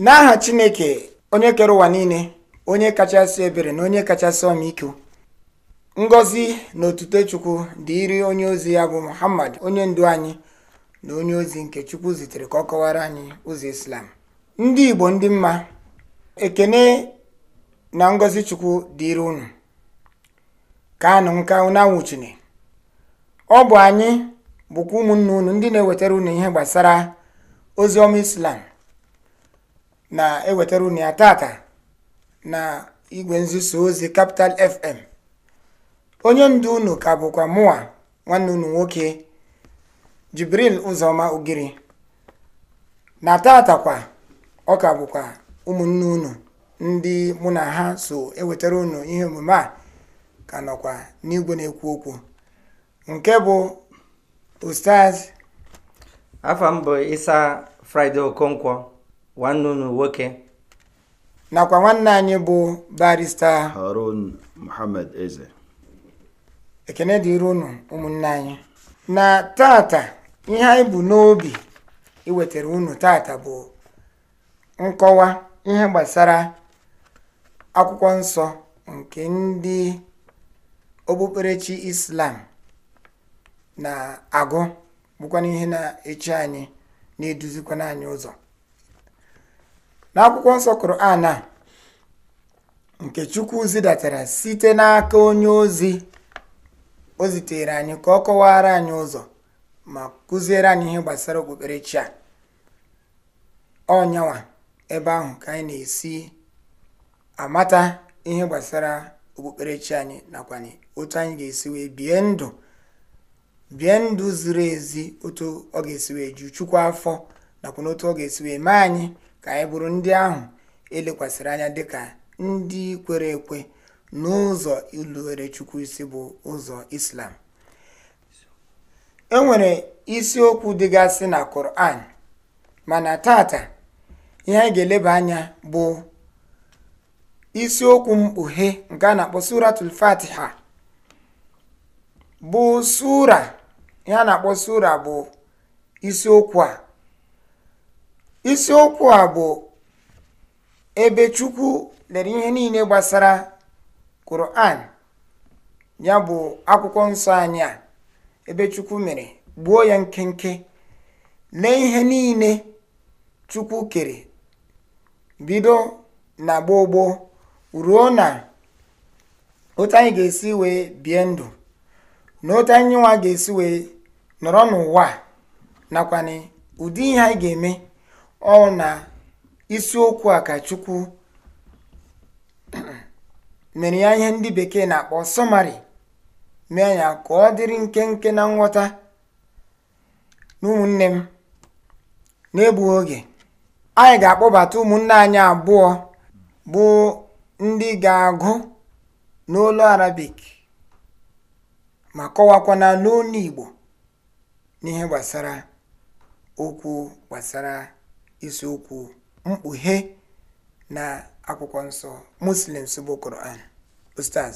n'aha chineke onye kere ụwa niile onye kachasị ebere na onye kachasị ọmịiko ngozi na otuto chukwu dị onye ozi ya bụ muhammad onye ndu anyị na onye ozi nke chukwu zitere ka ọ kọwara anyị ụzọ islam ndị igbo ndị mma ekene na ngọzi chukwu dịrị unu ka anụ nka unu ọ bụ anyị bụkwa ụmụnna unu ndị na-ewetara unu ihe gbasara ozi ọma islam na-ewetara unu ya tata na igwe nzuzo ozi Capital FM onye ndu unu ka bụkwa mụwa nwanne unu nwoke Jibril Ụzọma Ugiri na tata kwa ọ ka bụkwa ụmụnne unu ndị mụ na ha so ewetara unu ihe omume a ka nọkwa n'igwe na-ekwu okwu nke bụ Ustaz afọ m bụ Isa Friday Okonkwo nwanne unu nwoke nakwa nwanne anyị bụ barista harun muhammad eze ekene dịrị unu ụmụnne anyị na tata ihe anyị bụ n'obi iwetara unu tata bụ nkọwa ihe gbasara akwụkwọ nsọ nke ndị okpukperechi islam na-agụ bụkwana ihe na-echi anyị na-eduzikwana anyị ụzọ n'akwụkwọ nsọ Koran a nke Chukwu zidatara site n'aka onye ozi o zitere anyị ka ọ kọwara anyị ụzọ ma kụziere anyị ihe gbasara okpukperechi a ọnyanwa ebe ahụ ka anyị na-esi amata ihe gbasara okpukperechi anyị nakwa otu anyị ga-esi wee bie ndụ ziri ezi otu ọ ga-esi wee ju Chukwu afọ nakwa n'otu ọ ga-esi wee mee anyị ka anyị bụrụ ndị ahụ elekwasịrị anya dịka ndị kwere ekwe n'ụzọ irubere chukwu isi bụ ụzọ islam enwere isiokwu dịgasị na koran mana tata ihe anyị ga-eleba anya bụ isiokwu mkpughe nke a na-akpọ suratul fatiha bụ sura ihe a na-akpọ sura bụ isiokwu a isiokwu a bụ ebe chukwu lere ihe niile gbasara Quran ya bụ akwụkwọ nsọ anyị a ebe chukwu mere gbuo ya nkenke lee ihe niile chukwu kere bido na gboo gboo ruo na otu anyị ga-esi wee bie ndụ na otu anyị nwa ga-esi wee nọrọ n'ụwa nakwa ụdị ihe anyị ga-eme ọ na isiokwu a ka chukwu mere ya ihe ndị bekee na-akpọ sọmarị mee ya ka ọ dịrị nkenke na nghọta na ụmụnne m na oge anyị ga-akpọbata ụmụnne anyị abụọ bụ ndị ga-agụ n'olu arabik ma kọwakwana n'olu igbo n'ihe gbasara okwu gbasara isiokwu mkpughe na akwụkwọ nsọ muslims bụ koran ustaz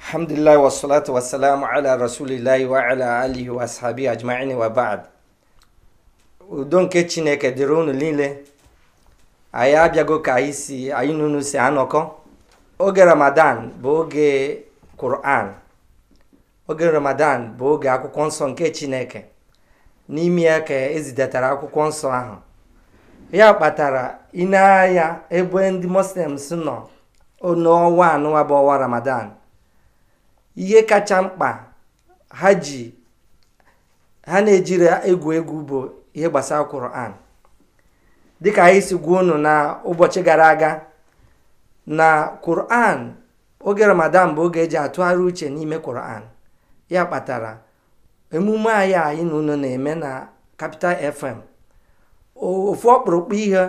alhamdulillah wasalatu wasalamu ala rasulillahi wa ala alihi wa ashabi ajma'in wa ba'd udo nke chineke dịrị unu niile anyị abịago ka anyị si anyị n'unu si anọkọ oge ramadan bụ oge quran oge ramadan bụ oge akwụkwọ nsọ nke chineke n'ime ya ka ezidatara akwụkwọ nsọ ahụ ya kpatara na-agha ebe ndị muslims nọ n'ọnwa anụwa bụ ọnwa ramadan ihe kacha mkpa ha ji ha na-ejiri egwu egwu bụ ihe gbasara Quran dịka anyị si gwuo unu na ụbọchị gara aga na Quran oge ramadan bụ oge eji atụgharị uche n'ime Quran ya kpatara emume anyị anyị na unu na-eme na kapital FM ofu ọkpụrụkpụ ihe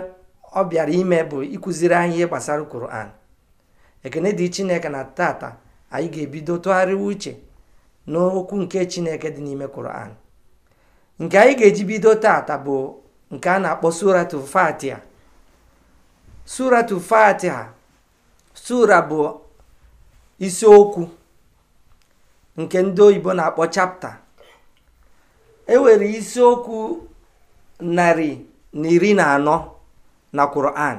ọ bịara ime bụ ikuziri anyị ihe gbasara koran ekene dị Chineke na tata anyị ga-ebido tụgharịwa uche n'okwu nke Chineke dị n'ime koran nke anyị ga-eji bido tata bụ nke a na-akpọ suratu Fatiha suratu sura bụ isiokwu nke ndị oyibo na-akpọ chapta E nwere isiokwu narị na iri na anọ na Quran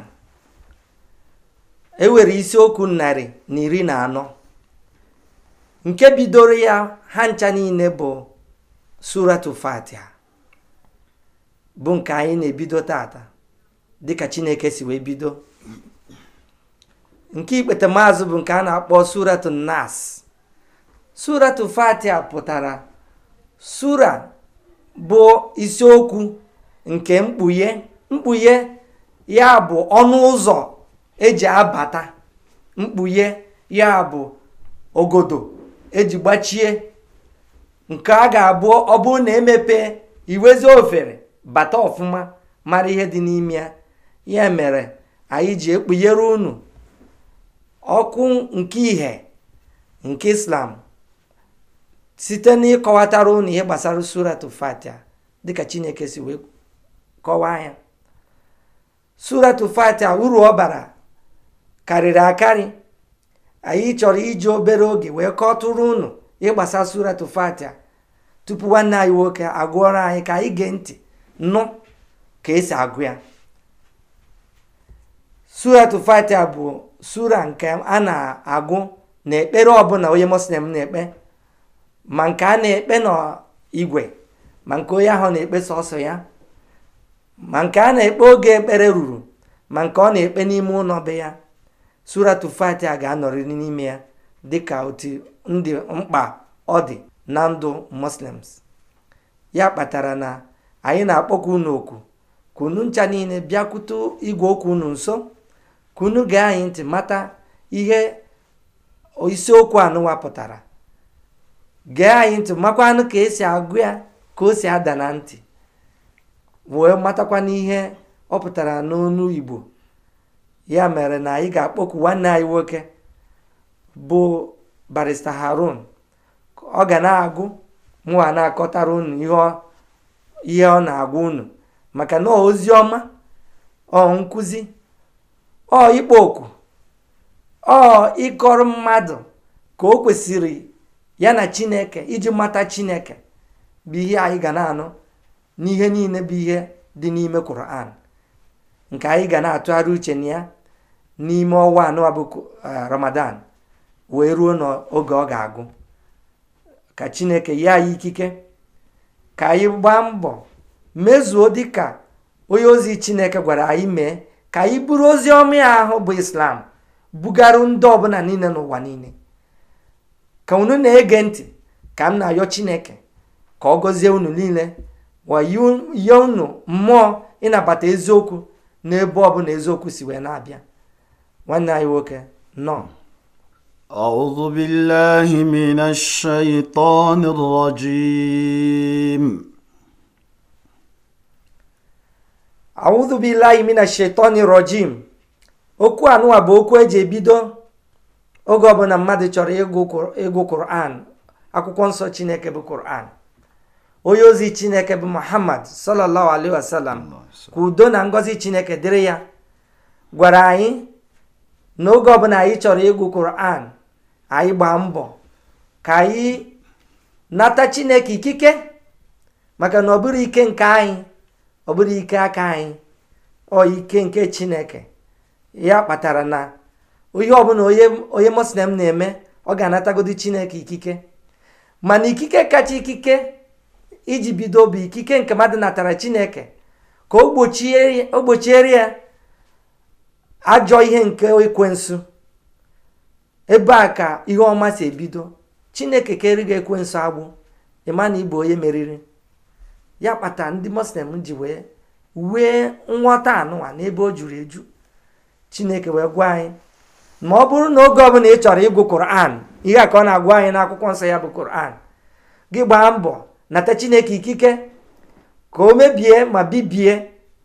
e nwere isiokwu narị na iri na anọ nke bidoro ya ha ncha niile bụ suratu Fatiha bụ nke anyị na-ebido tata dịka Chineke si wee bido nke ikpete maazụ bụ nke a na-akpọ suratu Nas suratu pụtara sura bụ isiokwu nke mkpughe mkpughe ya bụ ọnụ ụzọ eji abata mkpughe ya bụ ogodo eji gbachie nke a ga-abụ ọ bụrụ na emepe iwezi ofere bata ofuma mara ihe dị n'ime ya ya mere anyị ji ekpughere unu ọkụ nke ihe nke islam site n'ịkọwatara ụnụ ihe gbasara surat fatia dịka chineke si wee kọwaa ya surat fatia uru ọ bara karịrị akarị anyị chọrọ iji obere oge wee kọtụrụ ụnụ ịgbasa gbasara surat fatia tupu nwanne anyị nwoke agụọrọ anyị ka anyị gee ntị nụ ka esi agụ ya surat fatia bụ sura nke a na-agụ na ekpere ọbụla onye muslim na-ekpe ma nke a na-ekpe n'igwe ma nke onye ahụ na-ekpe sọsọ ya ma nke a na-ekpe oge ekpere ruru ma nke ọ na-ekpe n'ime ụlọ be ya suratu fatia ga-anọrịrị n'ime ya dịka otu ndị mkpa ọ dị na ndụ muslims ya kpatara na anyị na akpọku unu oku kunu ncha niile bịakwute igwe okwu unu nso kunu gee anyị ntị mata ihe isiokwu anụwa pụtara gee anyị ntị anụ ka esi agụ ya ka o si ada na ntị wee matakwa n'ihe ọ pụtara n'onu Igbo ya mere na anyị ga-akpọku nwanne anyị nwoke bụ barista Harun ọ ga na-agụ mụwa na-akọtara unu ihe ọ na agụ unu maka na ozi ọma ọ nkụzi ọ ikpo oku ọ ịkọrọ mmadụ ka o kwesịrị ya na chineke iji mata chineke bụ ihe anyị ga na-anụ n'ihe niile bụ ihe dị n'ime Quran nke anyị ga na-atụgharị uche na ya n'ime ọnwa anọ bụ e, Ramadan wee ruo n'oge ọ ga-agụ ka chineke ya anyị ikike ka anyị gbaa mbọ mezuo dịka onye ozi chineke gwara anyị mee ka anyị bụrụ ozi ọma ahụ bụ islam bugaru ndị ọbụla niile n'ụwa niile ka unu na-ege ntị ka m na-ayọ chineke ka ọ gọzie unu niile wayie unu mmụọ ịnabata eziokwu n'ebe ọ ọbụla eziokwu si wee na-abịa nwanne anyị nwoke nọ أعوذ بالله من الشيطان الرجيم أعوذ بالله من الشيطان الرجيم okwu anụwa bụ okwu eji ebido oge ọbụla mmadụ chọrọ ịgụ Quran akwụkwọ nsọ Chineke bụ Quran onye ozi Chineke bụ Muhammad sallallahu alaihi wasallam ka na ngozi Chineke dịrị ya gwara anyị na oge ọbụla anyị chọrọ ịgụ Quran anyị gbaa mbọ ka anyị nata Chineke ikike maka na ọ bụrụ ike nke anyị ọ bụrụ ike aka anyị ọ ike nke Chineke ya kpatara na onye ọbụla onye muslim na-eme ọ ga-anatagodi chineke ikike mana ikike kacha ikike iji bido bụ ikike nke mmadụ natara chineke ka o gbochiere ya ajọ ihe nke ekwensu ebe a ka ihe ọma si ebido chineke keri gị ekwensu agbụ ịma na ịbụ onye meriri ya kpata ndị muslim ji wee wee nghọta anụwa n'ebe o juru eju chineke wee gwa anyị ma ọ bụrụ na oge ọbụla ị chọrọ ịgụ koran ihe a ka ọ na-agwa anyị akwụkwọ nsọ ya bụ koran gị gbaa mbọ nata chineke ikike ka o mebie ma bibie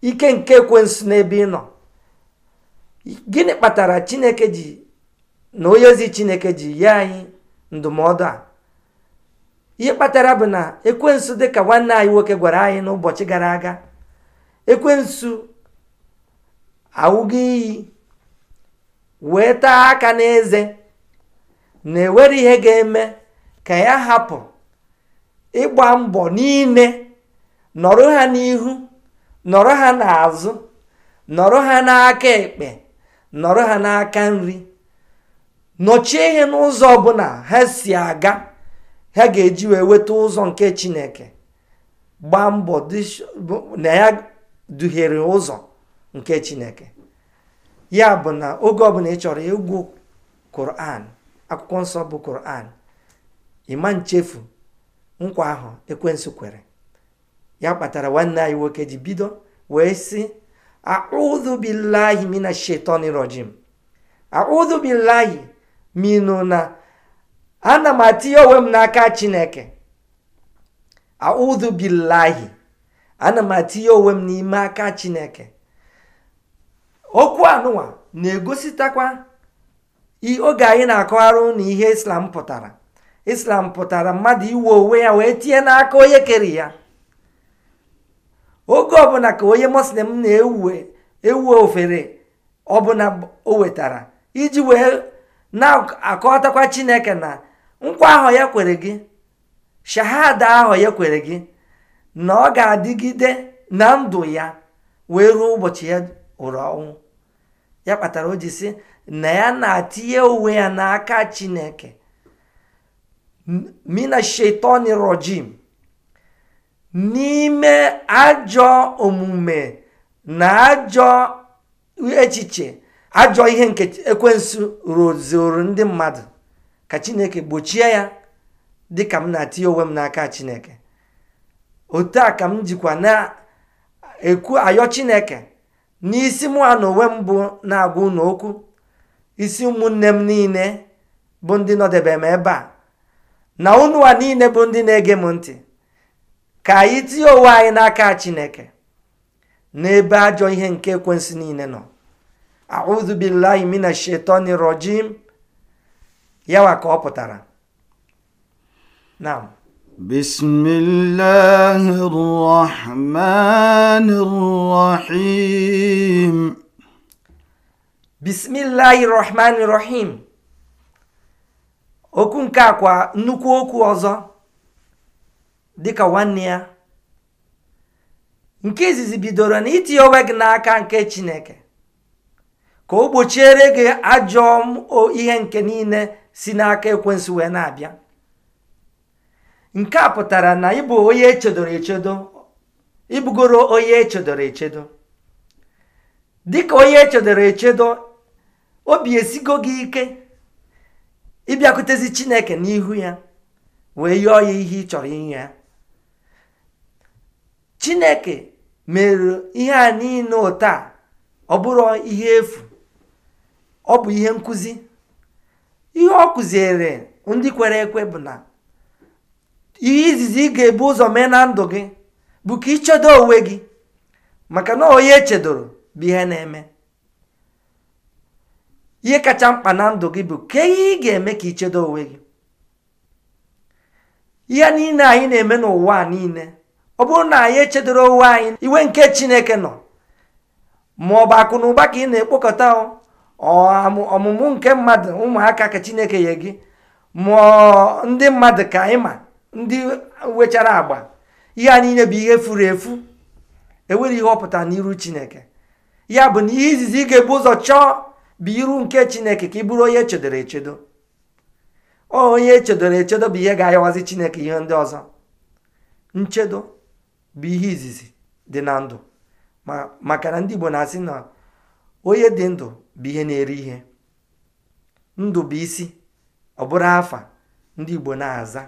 ike nke ekwensu n'ebe ị nọ gịnị kpatara chineke ji na onye ozi chineke ji nye anyị ndụmọdụ a ihe kpatara bụ na ekwensu ka nwanne anyị nwoke gwara anyị n'ụbọchị gara aga ekwensu awụgo iyi weta aka n'eze na ewere ihe ga-eme ka ya hapụ ịgba mbọ niile nọrọ ha n'ihu nọrọ ha n'azụ nọrọ ha n'aka ekpe nọrọ ha n'aka nri nọchie ihe n'ụzọ ọbụla ha si aga ha ga-eji wee weta ụzọ nke chineke gbaa mbọ na ya duhiere ụzọ nke chineke ya bụ na oge ọbụla ị chọrọ ịgwụ koran akwụkwọ nsọ bụ koran ịma nchefu nkwa ahụ ekwensu kwere ya kpatara nwanne anyị nwoke ji bido wee sị audhu billahi mina shetani rojim audhu na ana m atinye onwe m n'aka chineke audhu a ana m atinye onwe m n'ime aka chineke okwu anụwa na-egositakwa oge anyị na-akọgharụ na ihe islam pụtara islam pụtara mmadụ iwe onwe ya wee tinye n'aka onye kere ya oge ọbụla ka onye muslim na-ewe ofere ọbụla o wetara iji wee na-akọtakwa chineke na nkwa ahụ ya kwere gị shahada ahụ ya kwere gị na ọ ga-adịgide na ndụ ya wee ruo ụbọchị ya hụrụ ọnwụ ya kpatara o ji sị na ya na-atinye onwe ya n'aka chineke mina shetani rojim n'ime ajọ omume na ajọ echiche ajọ ihe nke ekwensu rozoro ndị mmadụ ka chineke gbochie ya dị ka m na-atinye onwe m n'aka chineke otu a ka m jikwa na-ekwu ayọ chineke n'isi mụ na onwe m bụ na-agwa unu okwu isi ụmụnne m niile bụ ndị nọdebe m ebe a na unu niile bụ ndị na-ege m ntị ka anyị tinye onwe anyị n'aka Chineke n'ebe ajọ ihe nke ekwensu niile nọ a'udhu billahi mina shetani rojim yawa ka ọ pụtara بسم الله الرحمن الرحيم بسم الله الرحمن الرحيم okwu nke akwa nnukwu okwu ọzọ dịka nwanne ya nke izizi bidoro na itinye onwe gị n'aka nke chineke ka o gbochiere gị ajọ ihe nke niile si n'aka ekwensị wee na-abịa nke a pụtara na ịbụ onye echedoro echedo ịbụgoro onye echedoro echedo dịka onye echedoro echedo obi esigo gị ike ịbịakwutezi chineke n'ihu ya wee yọọ ya ihe ị chọrọ inye ya chineke mere ihe a niile ụtọ ọbụrụ ọ bụrụ ihe efu ọ bụ ihe nkụzi ihe ọ kụziere ndị kwere ekwe bụ na ihe izizi ị ga-ebu ụzọ mee na ndụ gị bụ ka ichedo onwe gị maka na onye echedoro bụ ihe na-eme ihe kacha mkpa na ndụ gị bụ ka ihe ị ga-eme ka ichedo onwe gị ihe niile anyị na-eme n'ụwa a niile ọ bụrụ na anyị echedoro onwe anyị iwe nke chineke nọ ma ọ bụ akụ na ụba ka ị na-ekpokọta ọmụmụ nke mmadụ ụmụaka ka chineke nye gị ma ndị mmadụ ka anyị ma ndị wechara agba ihe a niile bụ ihe furu efu enwere ihe ọpụta n'iru chineke ya bụ na ihe izizi ị ga-ebu ụzọ chọọ bụ iru nke chineke ka ị bụrụ onye echedoro echedo onye echedoro echedo bụ ihe ga-ayawazi chineke ihe ndị ọzọ nchedo bụ ihe izizi dị na ndụ maka na ndị Igbo na-asị na onye dị ndụ bụ ihe na-eri ihe ndụ bụ isi ọ bụrụ afa ndị Igbo na-aza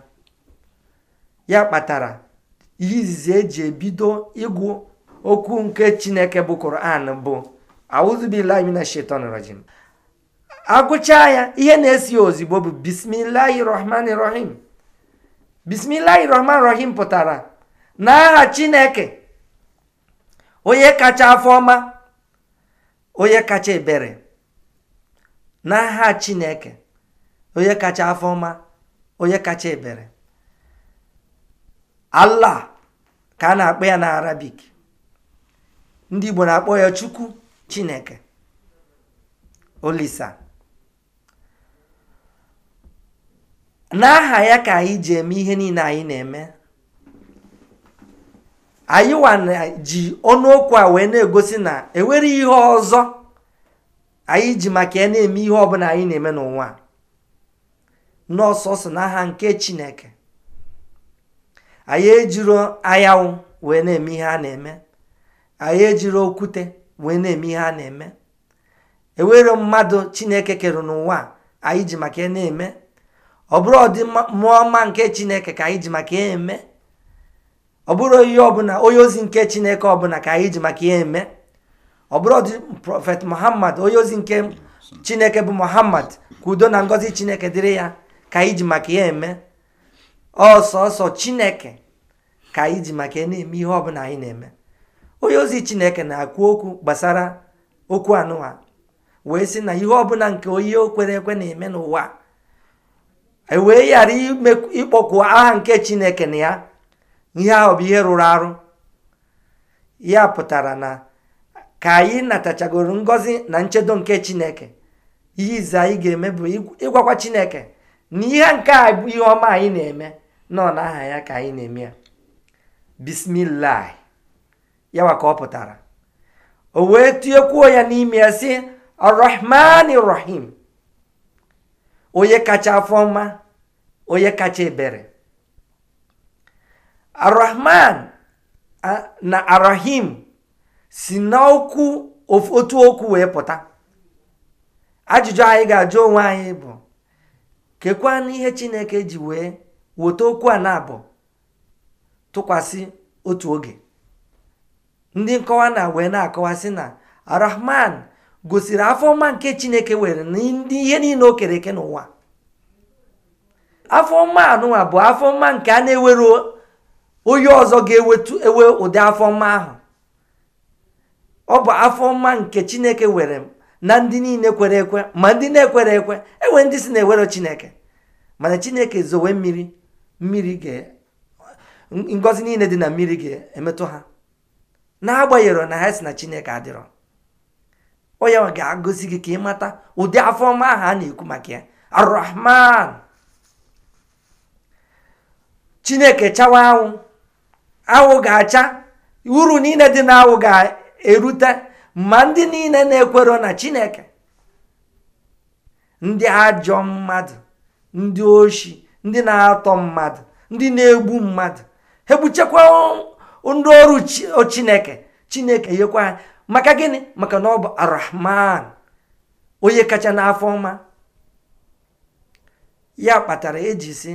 ya kpatara izizi eji ebido ịgụ okwu nke chineke bụ koran bụ auzubillahimina shetan rajim agụchaa ya ihe na-esi ya ozigbo bụ bismilahi rahman rahim bismilahi rahman rahim pụtara na n'aha chineke onye kacha afọ ọma onye kacha ebere n'aha chineke onye kacha afọ ọma onye kacha ebere ala ka a na-akpọ ya na arabik ndị igbo na-akpọ ya chukwu chineke olisa n'aha ya ka anyị ji eme ihe niile anyị na-eme anyị na ji ọnụokwu a wee na-egosi na enwere ihe ọzọ anyị ji maka ya na-eme ihe ọbụla anyị na-eme n'ụwa n'ọsọsọ n'aha nke chineke anyị ejiro anyanwụ wee na-eme ihe a na-eme anyị ejiri okwute wee na-eme ihe a na-eme ewere mmadụ chineke kere n'ụwa anyị ji maka na-eme ọ bụrụ ọdịmma mmụọ nke chineke ka anyị ji maka eme ọ bụrụ ihe ọbụla onye ozi nke chineke ọbụla ka anyị ji maka ya eme ọ bụrụ ọdị prọfet muhammad onye ozi nke chineke bụ muhammad ka udo na ngọzi chineke dịrị ya ka anyị ji maka ya eme ọsọsọ chineke ka anyị ji maka na-eme ihe ọbụla anyị na-eme onye ozi chineke na-akwu okwu gbasara okwu anụwa wee sị na ihe ọbụla nke onye okwere ekwe na-eme n'ụwa e wee ghara ịkpọkwu aha nke chineke na ya ihe ahụ bụ ihe rụrụ arụ ya pụtara na ka anyị natachagoro ngọzi na nchedo nke chineke ihe ize anyị ga-eme bụ ịgwakwa chineke na ihe nke a bụ ihe ọma anyị na-eme na-aha ya ka anyị na-eme ya bismillah yawa ka ọ pụtara o wee tiekwuo ya n'ime ya si arrahman rahim onye kacha afọ mma onye kacha ebere arrahman na arahim si n'okwu otu okwu wee pụta ajụjụ anyị ga-ajụ onwe anyị bụ na ihe chineke ji wee weta okwu a na-abụ tụkwasị otu oge ndị nkọwa na wee na-akọwasị na arahman gosiri afọ mma nke chineke were ihe niile o kere eke n'ụwa afọ ọma anụnwa bụ afọ mma nke a na-ewere onye ọzọ ga-ewe ewetu ụdị afọ ọma ahụ ọ bụ afọ mma nke chineke were na ndị niile kwere ekwe ma ndị na ekwe enwe ndị si na-ewere chineke mana chineke zowe mmiri mmiri ngọzi niile dị na mmiri ga-emetụ ha na n'agbanyeghị na ha si na chineke adịrọ onye ga agụzi gị ka ị mata ụdị afọ ọma ahụ a na-ekwu maka ya arrahman chineke chawa anwụ anwụ ga-acha uru niile dị na anwụ ga-erute ma ndị niile na-ekwero na chineke ndị ajọ mmadụ ndị oshi ndị na-atọ mmadụ ndị na-egbu mmadụ egbuchekwa ndị ọrụ chineke chineke yekwa ha maka gịnị maka na ọ bụ arahman onye kacha n'afọ ọma ya kpatara eji si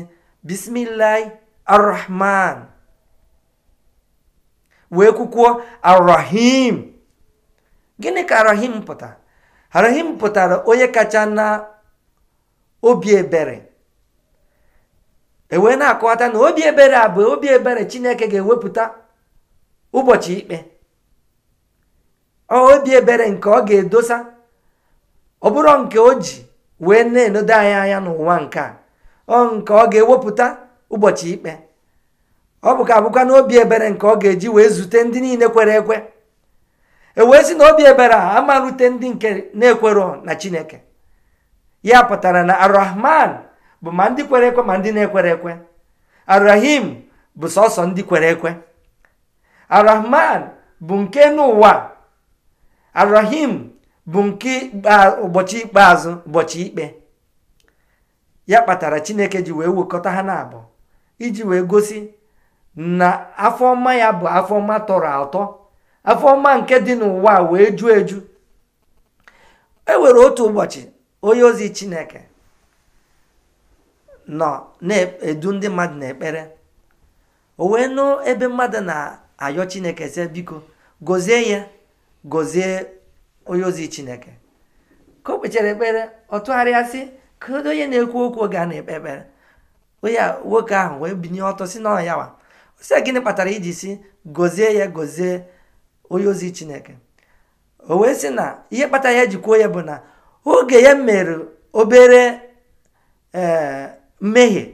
bismillahi arahman wee kwukwuo arahim gịnị ka arahim pụtara arahim pụtara onye kacha na obi ebere e wee na-akọwata na obi ebere a bụ obi ebere chineke ga-ewepụta ụbọchị ikpe obi ebere nke ọ ga-edosa ọ bụrụ nke o ji wee na-enodo anyị anya n'ụwa nke a ọ nke ọ ga-ewepụta ụbọchị ikpe ọ bụ ka abụkwa na obi ebere nke ọ ga-eji wee zute ndị niile kwere ekwe e wee si na obi ebere a amarute ndị nke na-ekwero na chineke ya pụtara na arahman bụ ma ndị kwere ekwe ma ndị na-ekwere ekwe arahim bụ sọsọ ndị kwere ekwe arahman bụ nke n'ụwa arahim bụ nke ụbọchị ikpeazụ ụbọchị ikpe ya kpatara chineke ji wee wekọta ha na abụọ iji wee gosi na afọ afọma ya bụ afọ ọma tọrọ atọ afọma nke dị n'ụwa wee ju eju e nwere otu ụbọchị onye ozi chineke nọ na-edu ndị mmadụ n'ekpere o wee nụ ebe mmadụ na-ayọ chineke sị biko gozie ya gozie onye ozi chineke ka o kpechara ekpere ọ tụgharịa sị ka onye na-ekwu okwu oge a na-ekpe ekpere onye nwoke ahụ wee binye ọtọ si ọ ya wa sị e, gịnị kpatara iji si gozie ya gozie onye ozi chineke o wee sị na ihe kpatara ya ji kwuo ya bụ na oge ya mere obere ee eh, mmehie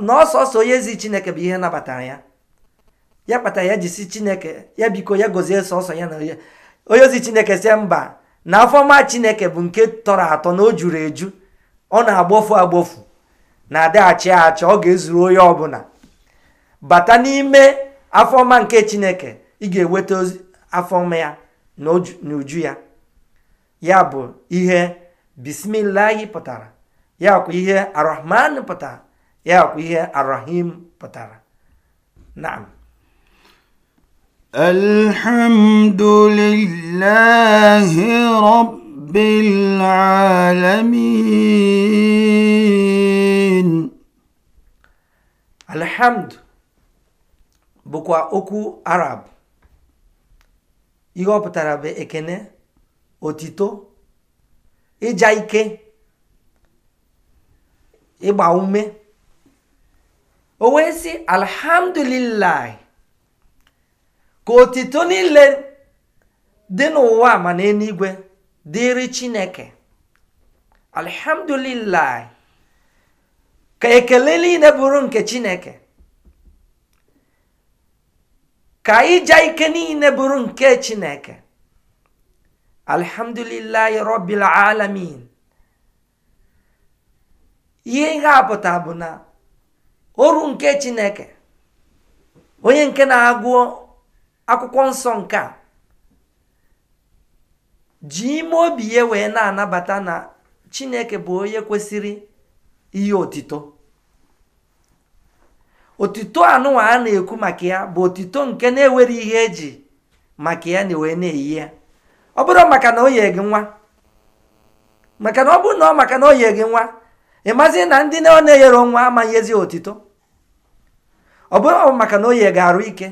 na ọsọsọ onye ezi chineke bụ ihe nabatara ya ya kpatara ya eji chineke ya biko ya gozie sọsọ ya na onye ozi chineke sie mba na afọma chineke bụ nke tọrọ atọ na o juru eju ọ na-agbofu agbofu na-adịghachi achị ọ ga-ezuru onye ọbụla bata n'ime afọma nke chineke ị ga-eweta afọma ya na uju ya ya bụ ihe bismillahi pụtara ya ihe arahman pụtara ya ihe arahim pụtara naam alhamdulillahi rabbil alamin alhamd bụkwa okwu arab ihe ọ pụtara bụ ekene otito ija ike ịgba ume o wee sị alhamdulillah ka otito niile dị n'ụwa ma na eluigwe dịrị chineke alhamdulillah ka ekele niile bụrụ nke chineke ka ịja ike niile bụrụ nke chineke alhamdulillah rabbil alamin ihe ihe a pụta bụ na oru nke chineke onye nke na agụọ akwụkwọ nsọ nke a ji ime obi ya wee na-anabata na chineke bụ onye kwesịrị ihe otito otito anụwa a na-ekwu maka ya bụ otito nke na-ewere ihe eji maka ya na wee na-eyi ya ọ bụrụ maka na o nwa maka na ọ bụrụ na ọ maka na o nwa mazi na ndị ọ na-eyere nwa ezi otito ọ bụrụ maka na oye ga-arụ ike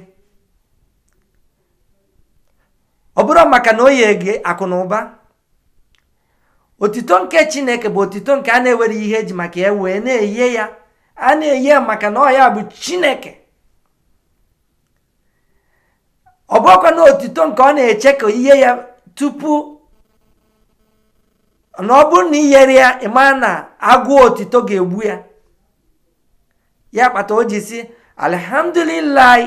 ọ bụrụ maka na oye gị akụ na ụba otito nke chineke bụ otito nke a na-ewere ihe eji maka ya wee na eye ya a na eye ya maka na bụ chineke ọ bụrụkwa na otito nke ọ na-eche ka ihe ya tupu na ọ bụrụ na i ya ịma na agụụ otito ga-egbu ya ya kpata o ji si alhamdulillahi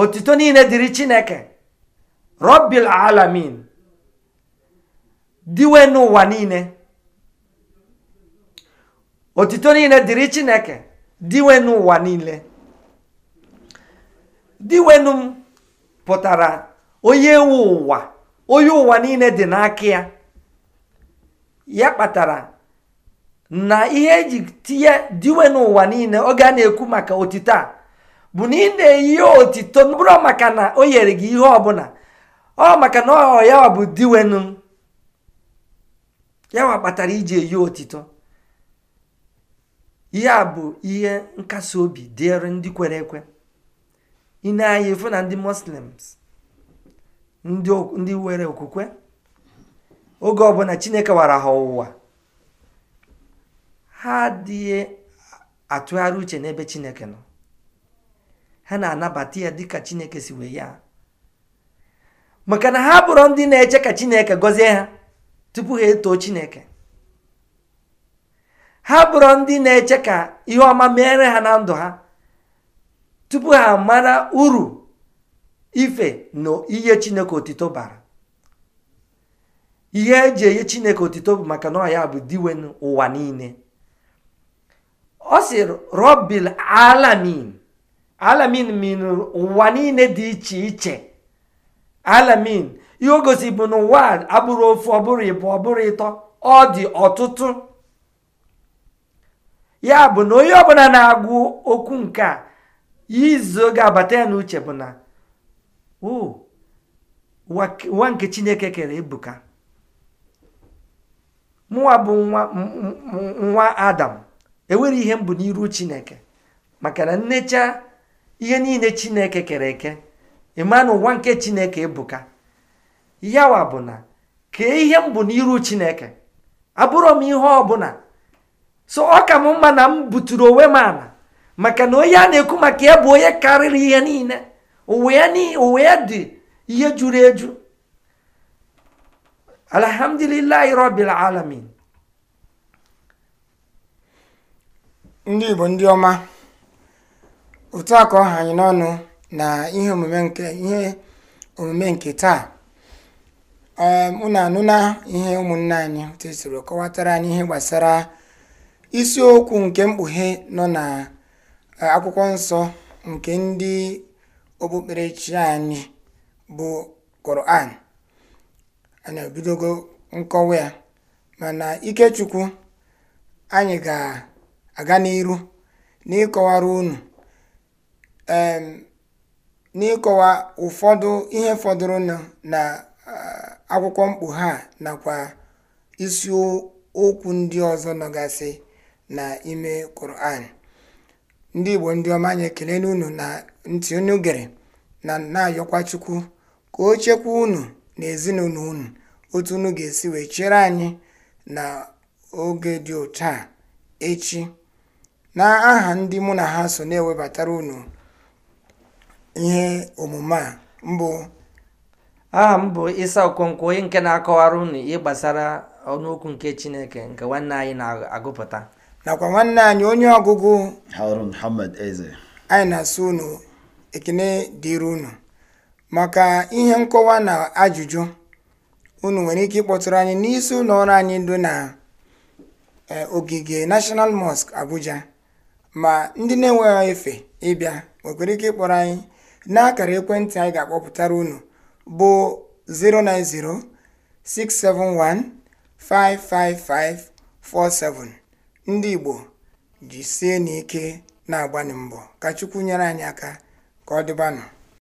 otito niile dịrị chineke robbil alamin diwe n'ụwa niile otito niile dịrị chineke diwe n'ụwa niile diwenu m pụtara onye ewu ụwa onye ụwa niile dị n'aka ya ya kpatara na ihe eji tinye diwe n'ụwa niile oge a na-ekwu maka otito a bụ na ị na-eyi otito bụrụ maka na o nyere gị ihe ọbụla ọ maka na ọ ya bụ diwenu yawa kpatara iji eyi otito ihe a bụ ihe nkasi obi dịrị ndị kwere ekwe ị na na ndị muslims ndị nwere okwukwe oge ọ ọbụla chineke wara ha ụwa, ha adịghị atụgharị uche n'ebe chineke nọ ha na-anabata ya dịka chineke si wee ya maka na ha bụrụ ndị na-eche ka chineke gọzie ha tupu ha etoo chineke ha bụrụ ndị na-eche ka ihe ọma meere ha na ndụ ha tupu ha mara uru ife na chineke otito bara ihe eji enye chineke otito bụ maka na ya bụ diwen ụwa niile ọ si robil alamin alamin min ụwa niile dị iche iche alamin ihe o gosi bụ na ụwa abụrụ ofu ọbụrụ ịbụ ọbụrụ ịtọ ọ dị ọtụtụ ya bụ na onye ọbụla na-agụ okwu nke a izu ga-abata ya n'uche bụ na ụwa nke chineke kere ebuka mụwa bụ nwa nwa adam enwere ihe mbụ n'iru chineke maka na nnecha ihe niile chineke kere eke ịma na ụwa nke chineke ebuka yawa bụ na kee ihe mbụ n'iru chineke abụrọ m ihe ọbụla so ọ ka m mma na m buturu onwe m ala maka na onye a na-ekwu maka ya bụ onye karịrị ihe niile ụwa ya dị ihe juru eju alhamdulillah rabbil alamin ndị igbo ndị ọma otu a ka ọha anyị n'ọnụ na ihe omume nke ihe omume nke taa ehm, unu anụna ihe ụmụnne anyị tesoro kọwatara anyị ihe gbasara isiokwu nke mkpughe nọ na e, akwụkwọ nsọ nke ndị okpukperechi anyị bụ koran mana ebidogo nkọwa ya mana ikechukwu anyị ga-aga n'iru n'ịkọwara unu n'ịkọwa ụfọdụ ihe fọdụrụnụ na akwụkwọ mkpughe ha nakwa okwu ndị ọzọ nọgasị na ime Quran ndị Igbo ndị ọma anyị ekele unu na ntị unu na na-ayọkwa Chukwu ka o chekwa unu n'ezinụlọ unu otu unu ga-esi wee chere anyị na oge dị otu a echi na aha ndị mụ na ha so na-ewebatara unu ihe omume a mbụ aha m bụ isa okonkwo onye nke na-akọwara unu ihe gbasara ọnụokwu nke chineke nke nwanne anyị na-agụpụta nakwa nwanne anyị onye ọgụgụ Eze anyị na-asụ unu ekene dịrị unu maka ihe nkọwa na ajụjụ unu nwere ike ịkpọtụrụ anyị n'isi ụlọ ọrụ anyị dị na e, ogige National Mosque Abuja ma ndị na-enweghị efe ịbịa nwekwara ike ịkpọrọ anyị n'akara ekwentị anyị ga-akpọpụtara unu bụ 09067155547 ndị Igbo jisie n'ike na-agbanị mbọ ka Chukwu nyere anyị aka ka ọ dịbanụ